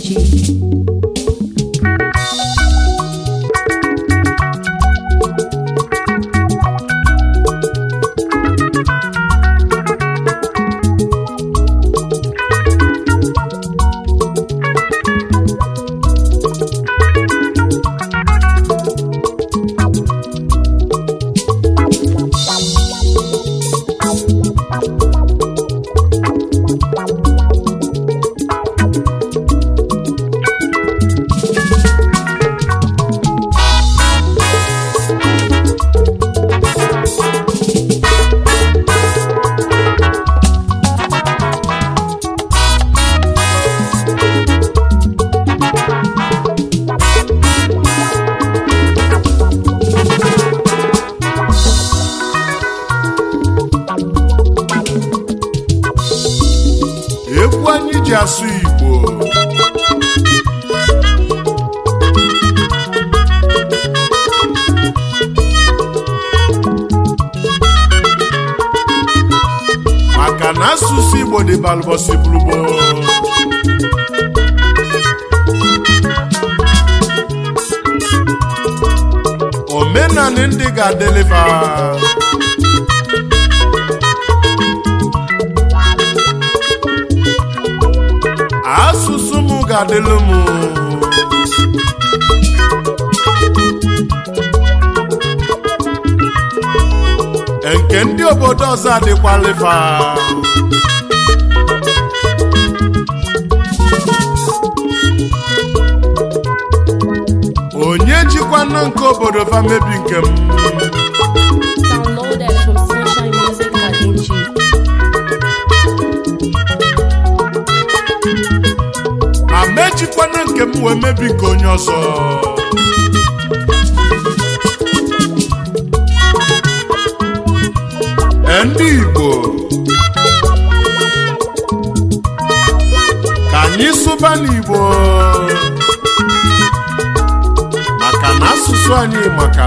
Gigi. balbọsị bụrụbo omenanị ndị ga-adeliva asụsụ m ga-adịlụ m nke ndị obodo ọzọ adịkwaliva anụ nke obodo famebi nke m amejikwana nke m wee mebi nke onye ọzọ e, ndị Igbo ka anyị sụba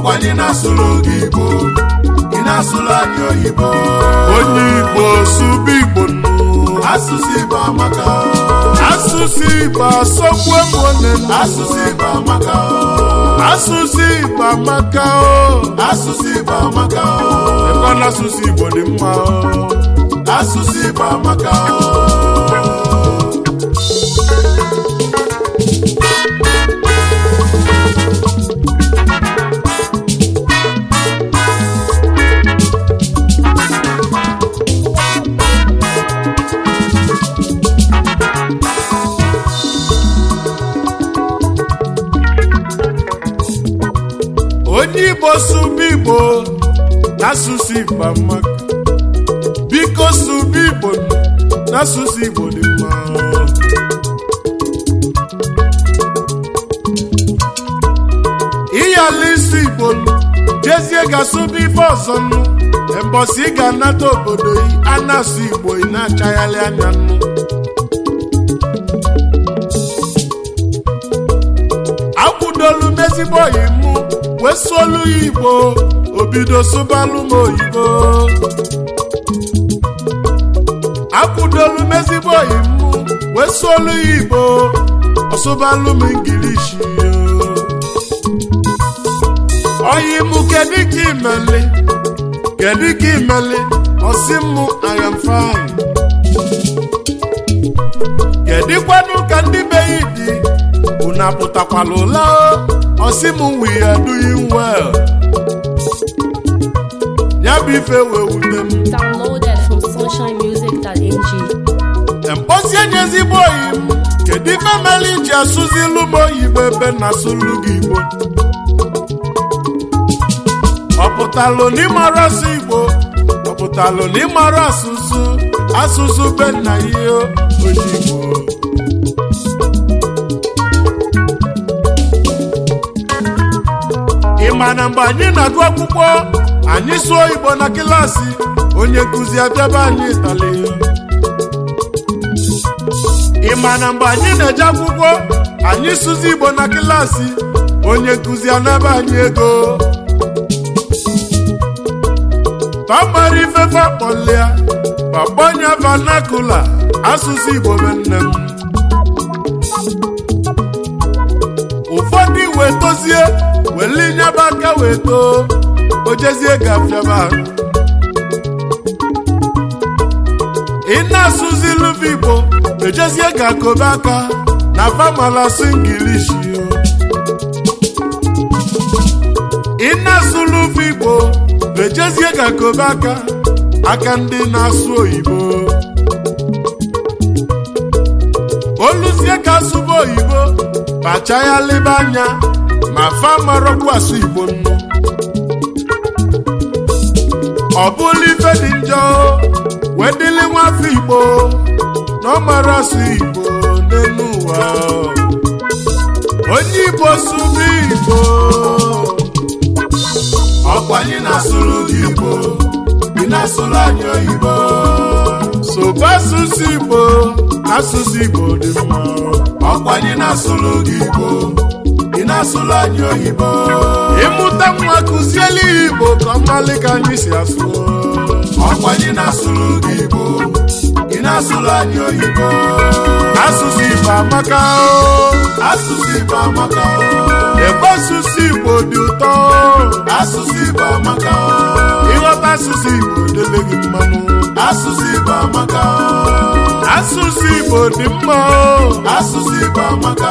ọkwa anyị na-asụrụ gị igbo ị na-asụrụ anyị oyibo onye igbo sụba igbo asụsụ igbo amaka asụsụ igbo asọkwu mụne asụsụ igbo amaka asụsụ igbo amaka asụsụ igbo amaka ekwana asụsụ igbo dị mma asụsụ igbo amaka biko sụba igbo n'asụsụ igbo amaka biko su igbo n'asụsụ igbo dị mma ịyala isi igbo jezie ga-asụba ife ọzọ nụ mbọsị ị ga-anata obodo yi a na-asụ igbo ị na-achagharị anya nụ akwụdolu mezigbo m wesu olu igbo obido sụbalụ m oyibo akwụdolu m ezigbo oyi m wesolu igbo ọsụbalụ m ingilishi oyi m kedu ka imeli kedu ka imeli ọsị m I am fine ka dị unu apụtakwala ọsịmụ m we are doing ya bụ ife wee wute m downloaded from nye ezigbo oyi m kedu ife mere ji asụzi ilu m oyibo ebe na asụlu gị igbo ọpụtalụ n'ịmara asụ igbo ọpụtalụ n'ịmara asụsụ asụsụ be nna ihe ojibo na mgbe anyị na-agụ akwụkwọ anyị sụọ igbo na kịlasị onye nkụzi abịaba anyị ịtali ị ma na mgbe anyị na-eje akwụkwọ anyị sụzi igbo na kịlasị onye nkụzi anaba anyị ego pamara ifefe akpọlịa papa asụsụ igbo wetoo ojezie gafiaba ị na-asụzi luva igbo ejezie ga kobe aka na famalasi ngilishi ị na-asụ luva igbo ejezie ga kobe aka aka ndị na-asụ oyibo oluzie ka asụba oyibo kpacha ya lebe anya ma fa marọkwa asụ igbo ọ bụla ife dị njọ wee dịlị nwafọ igbo na ọ mara asụ igbo n'elu ụwa onye igbo sụrụ igbo ọkwa anyị na-asụrụ gị igbo ị na-asụrụ anyị oyibo sobe asụsụ igbo asụsụ igbo dị mma ọkwa anyị na-asụrụ gị igbo ị na-asụrụ anyị oyibo mụta nwa kụziela igbo ka mmalị ka anyị si asụ ọkwa anyị na-asụrụ gị igbo ị na-asụrụ anyị oyibo asụsụ igbo amaka asụsụ igbo amaka ebe asụsụ igbo dị ụtọ asụsụ igbo amaka ịghọta asụsụ igbo dele gị mmanụ asụsụ igbo amaka asụsụ igbo dị mma asụsụ igbo amaka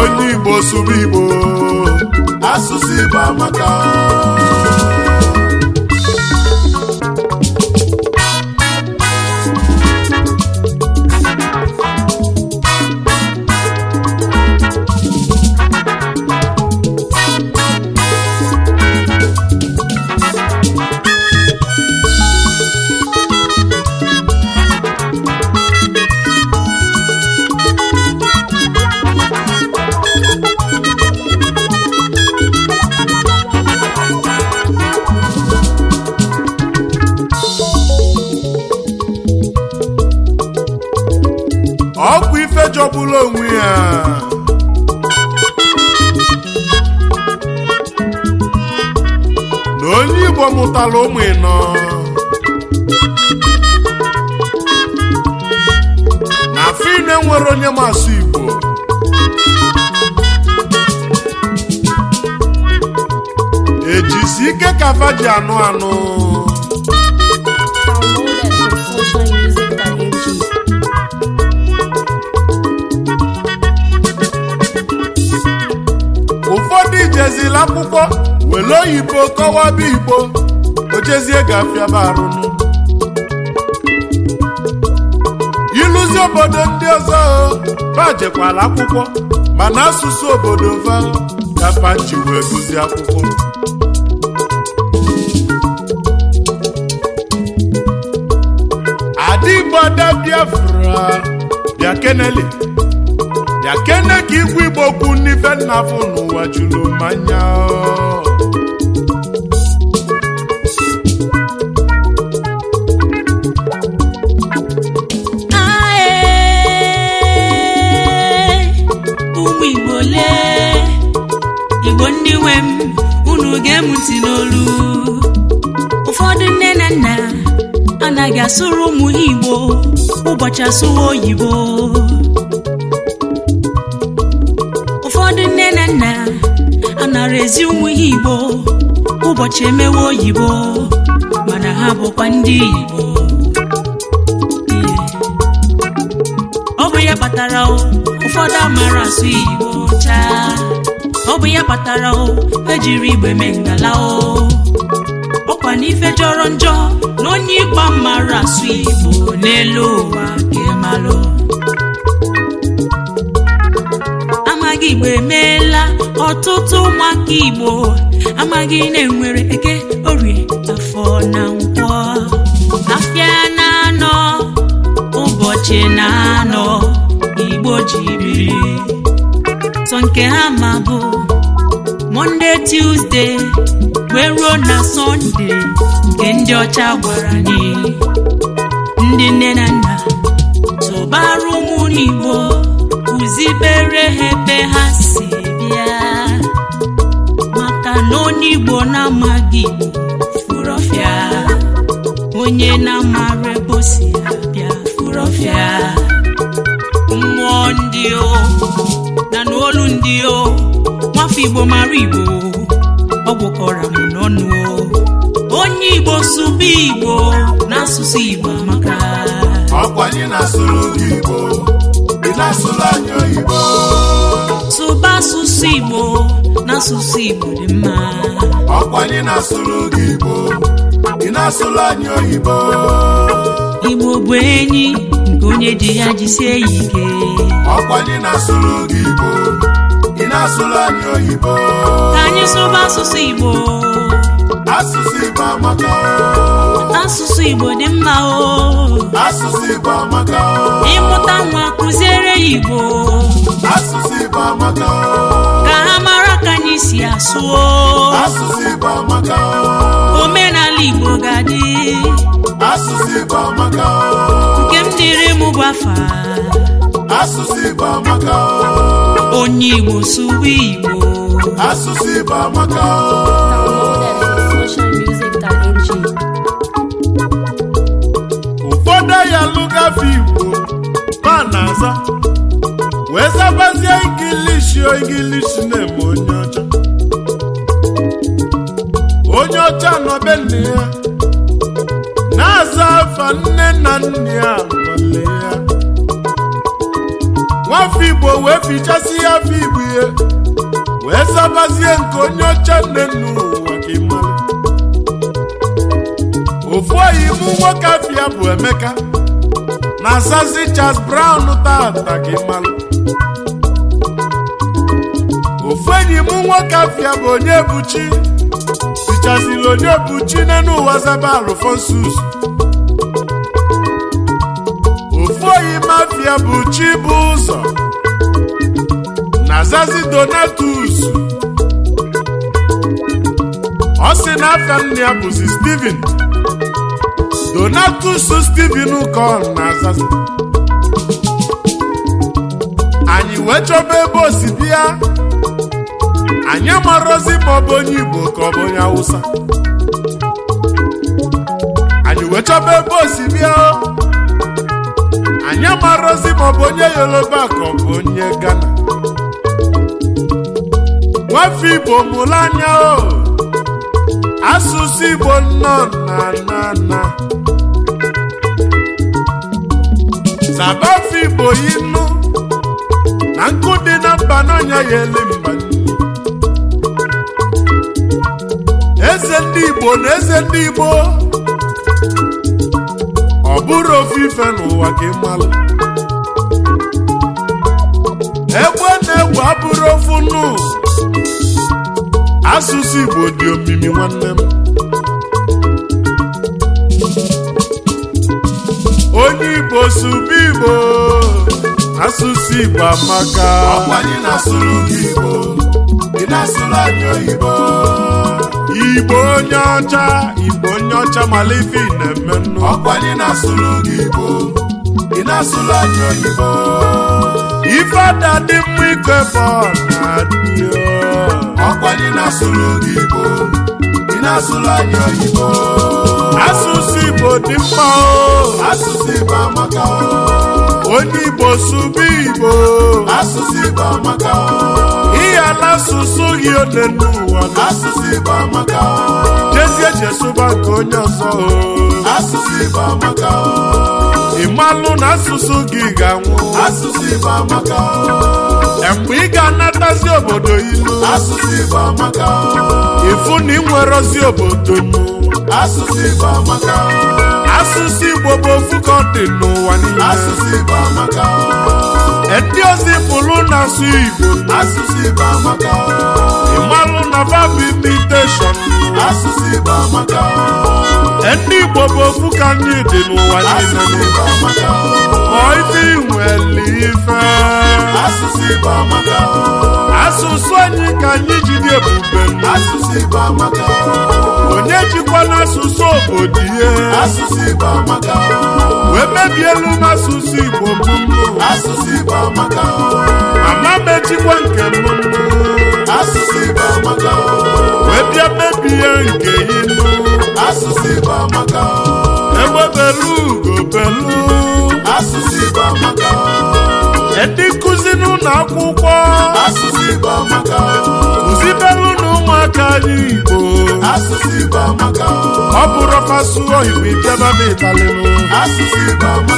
onye igbo sụrụ igbo asụsụ Igbo maka ọgbara ụmụ ịnọ afọ ine nwere onye masụ igbo ejisi ike ka fa ji anụ anụ ụfọdụ ijezila akwụkwọ were oyibo kọwaba igbo ichezie ga-afịaba arụnụ ịlụzi obodo ndị ọzọ bajekwala akwụkwọ mana asụsụ obodo va gafanchi wee gụzi akwụkwọ adịgbo ada biafra bịa kenele ka igwe igbo okwu n'ife nna n'ụwa juru mmanya ndị nwe m unu ga-emu n'olu ụfọdụ nne na nna anaghị asụrụ ụmụ ha igbo ụbọchị asụwa oyibo ụfọdụ nne na nna anara ezi ụmụ ha igbo ụbọchị emewe oyibo mana ha bụkwa ndị igbo ọ bụ ya kpatara ụfọdụ amara asụ igbo chaa ọ bụ ya kpatara o ejiri igbe mee ngala o ọkwa n'ife jọrọ njọ na onye ịkpa mara asụ igbo n'elu ụwa kemalụ amaghị igbo emeela ọtụtụ ụmụaka igbo amaghị na-enwere eke orie afọ na nkwọ afịa na-anọ ụbọchị na-anọ igbo jiri sọ nke ha ma bụ monde tuzdee wee ruo na sọnde nke ndị ọcha gwara anyị ndị nne na nna tụbara ụmụ kụzibere ha ebe ha si bịa maka na onye igbo na-amaghị ọfịa onye na-amara ebe bịa si abịa mmụọ ndị o na n'olu ndị o nwafọ igbo mara igbo ọ gwọkọra m n'ọnụ onye igbo sụba igbo n'asụsụ igbo amaka ọkwa anyị na-asụrụ gị igbo ị na-asụrụ anyị oyibo sụba asụsụ igbo n'asụsụ igbo dị mma ọkwa anyị na-asụrụ gị igbo ị na-asụrụ anyị oyibo igbo bụ enyi onye ji ya jisie ya ike ọkwa dị na-asụrụ Igbo ị na-asụrụ anyị oyibo ka anyị sụba asụsụ Igbo asụsụ Igbo amaka asụsụ Igbo dị mma o asụsụ Igbo amaka ịmụta nwa kụziere Igbo asụsụ Igbo amaka ka ha mara ka anyị si asụ o omenala Igbo ga-adị asụsụ Igbo amaka nke m dịrị m gwafa asụsụ Igbo amaka onye Igbo sụwa Igbo asụsụ Igbo amaka ụfọdụ ya lụgafe Igbo ma na-aza wee zabazie ingilishi ingilishi na-eme onye ọcha onye ọcha nọ be nne ya nne na nna ya nwale ya nwafọ igbo wee fichasị ya afọ igbo ihe wee sabazie nke onye oche nne nna ụwa ka ya. ofu oyimu nwoke afia bụ emeka na zazi Charles Brown tata ka ịmara ofu enyi m nwoke afia bụ onye buchi fichaziri onye buchi n'elu ụwa zaba Alfonsus Ọfịa bụ ụzọ na Zazi Donatus ọ sị na afịa nne ya bụzi Steven Donatus Steven ka ọ na Zazi anyị wee chọba ebe osimiri ya anyị amarozi ma ọ bụ onye Igbo ka ọ bụ onye Awụsa. anyị wee chọba ebe osimiri ya anyị amarozi maọbụ onye yoruba akọ bụ onye gana nwafọ igbo mụrụ anya o asụsụ igbo nnọọ na na na sabafọ igbo yinu na nkụ dị na mba n'ọnya ya ele mba eze ndị igbo na eze ndị igbo ọ bụrụ ofu ife n'ụwa ka mmalụ egwe na-egwu abụrụ ofu nnu asụsụ Igbo dị omimi nwanne m onye Igbo subi Igbo asụsụ Igbo amaka ọkwa na-asụrụ Igbo ị na Igbo onye ọcha Igbo onye ọcha mala ife ị na-eme nnu Ọkwa ọkwanye na-asụrụ gị igbo ị na-asụrụ anyị oyibo ife dị mma ike bụ Ọkwa ọkwanye na-asụrụ gị igbo ị na-asụrụ anyị oyibo asụsụ igbo dị mkpa o asụsụ igbo amaka o onye igbo sụba igbo asụsụ igbo amaka o ihe ala asụsụ gị ole asụsụ igbo amaka o na-esụba nke onye ọzọ asụsụ Igbo na asụsụ gị ga-anwụ asụsụ e mgbe ị ga-anatazi obodo ilu asụsụ Igbo ịfụ na ị obodo nụ asụsụ Igbo amaka asụsụ Igbo bụ ofu ka ọ dị niile ndị ozi pụrụ na-asụ Igbo asụsụ Igbo amaka ịmalụ na babụ imiteshọn asụsụ Igbo amaka ndị Igbo bụ ofu ka anyị dị n'ụwa niile ọ ife inwele ife asụsụ Igbo amaka asụsụ anyị ka anyị ji dị ebube asụsụ Igbo amaka onye jikwa n'asụsụ obodo ihe asụsụ Igbo amaka wee mebielu m asụsụ Igbo mbụ asụsụ Igbo amaka ama m nke m asụsụ Igbo amaka wee bịa mebie nke inu asụsụ Igbo amaka egbe belu ugo belu asụsụ Igbo amaka ndị nkụzi n'ụlọ akwụkwọ asụsụ Igbo amaka belu na ụmụaka anyị Igbo asụsụ Igbo amaka ọ bụrụ fasu oyibo ịbịaba na ịtalịlụ asụsụ Igbo amaka